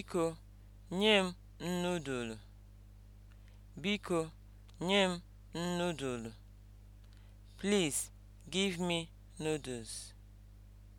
Biko nye m nudulu. Biko nye m nudulu. Please give me noodles.